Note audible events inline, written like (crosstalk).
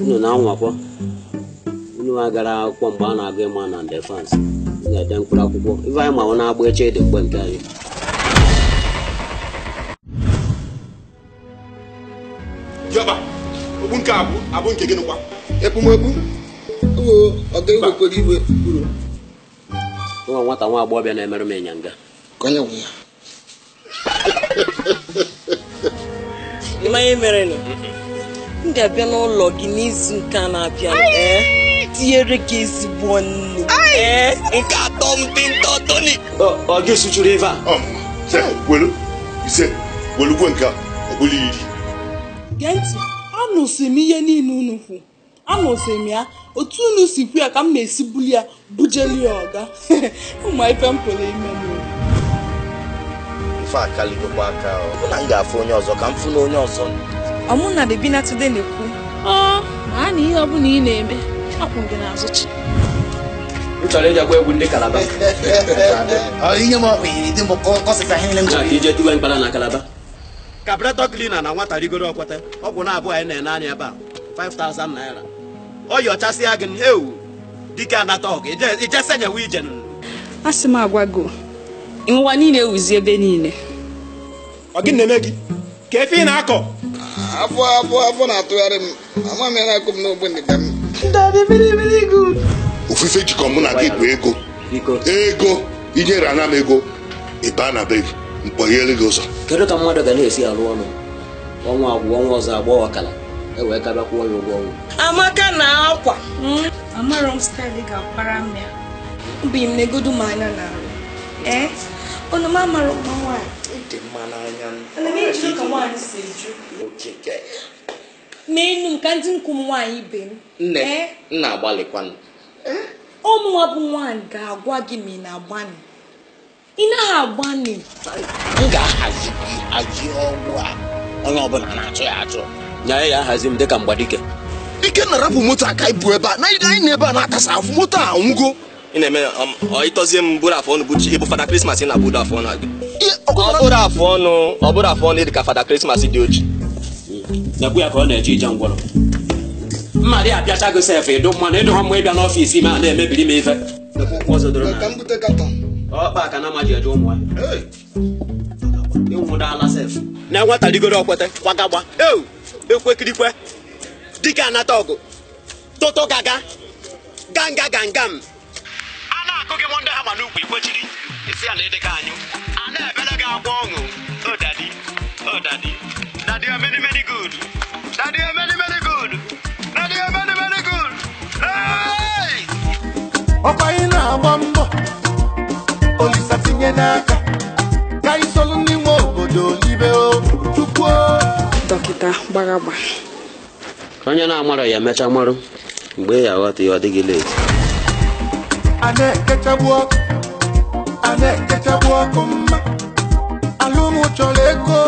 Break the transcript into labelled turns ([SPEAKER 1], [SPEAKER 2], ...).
[SPEAKER 1] unu na-anwakwa unu agara akwụkwọ mgbe a na-agụ ịma na defense ga-ede mkpụrụ akwụkwọ ife anyị ọ na-agba eche dị mgbe nke anyị Jọba, okpu nke nwa nwata nwa agbọghọbịa na-emerụ m ịnyanga ịmanye merenụ (laughs) m ga-abịa n'ụlọ gị n'izu nke na-abịa eh? tinyere gị ezigbo nnu eh? nke atọ m dị ntọ toni ọ ga-esuchuru ebe gee ntị anụsị m ihe niile unu kwu anụsị m ya otu unu si kwu ya ka m na-esi buli ya bujeli ya ọga (laughs) ụmụ ife m pụrụ ime m ife akalịgokwa aka ọ bụ m ga-afụ onye ọzọ ka m fụ na onye ọzọ ọmụ na bebi na today na-ekwu ma a na ihe ọbụla ị na-eme akwụ gị n'azụ chi kabretọ klina na nwata rigoro ọkwata ọgwụ na-abụọ anyị na-ene anya ebe a 5000 naira ọ yi gị ewu dike anata ọgụ ije a sị m agwa gị niile ewuzi ebe niile ọ gị na-eme gị ka efe ị na-akọ afọ afọ afọ na-atụgharị m ama m ya na-akụ m n'ogbe ndị m. ofufe jikọ mụ na gị bụ ego ego inyere ana m ego ịba na be mkpọghere gị ụzọ kedu ka mmadụ ga na-esi arụ ọrụ ọnwa agwụ ọnwa ọzọ agba ọkala e wee karịa kwụọ ya ụgwọ ọnwa amaka na akwa hmm? amarọ m staịlị ga-akwara m ya obi m na-egodu m anya na arụ ee eh? unu m amarụ nwa nwaanyị dị mma n'anya n'enu nka ndị nkwu m nwaanyị ibe m Nne, na-agbalịkwanụ ụmụnwa bụ nwaanyị ga-agwa gị ma ị na-agbanị ị naghị agbanị m ga-ahazi gị aji ọgwụ a onye ọbụla na-achọ ya achọ nye ya ahazi m dịka mgbadike ike na-arapụ moto aka ibu ebe a na anyị na-ebe a na-akasa afụ moto a nwụgo ị na-eme um, ịtọzie m bụrụ afọ ọnụ bụchi ịbụ fada krismas na-abụdo afọ ọnụ ọbụrụ afọ ọnụ ọbụrụ afọ ọnụ dị fada krismas dị oji ekwu ya ka ọ na-eje ije ngwọrọ mmadụ ya apịacha gị sef ịdụ mmanụ ịdụ ha mgbe ịbịa n'ọfiisi ma na-emebiri m ife ọkpa ka na amaji eje ụmụ ya ịnwụdala sef na enwetarigoro okwete kwagagba eu ekwekirikwe dike anata ọgụ toto gaga ganga gangam gị m ndị ha ma n'ukwu ikpochiri isi ya na ịdịka anyị a na-ebere gị agwa ọṅụ o oh, dadi o oh, dadi dadi gud many good dadi many gud good dadi many many good ọkwa anyị na-agba mbọ olisa tinye n'aka ka anyị solu ndị nwe obodo libe tukwuo oh, dọkịta gbara agba onye na-amarọ ya emecha marụ mgbe ya aghọta ya ọ dịghị leti anaekechagbu ọkụ anaekechagbu ọkụ mma Alumu choleko.